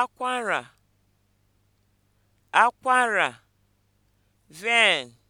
akwara akwara vein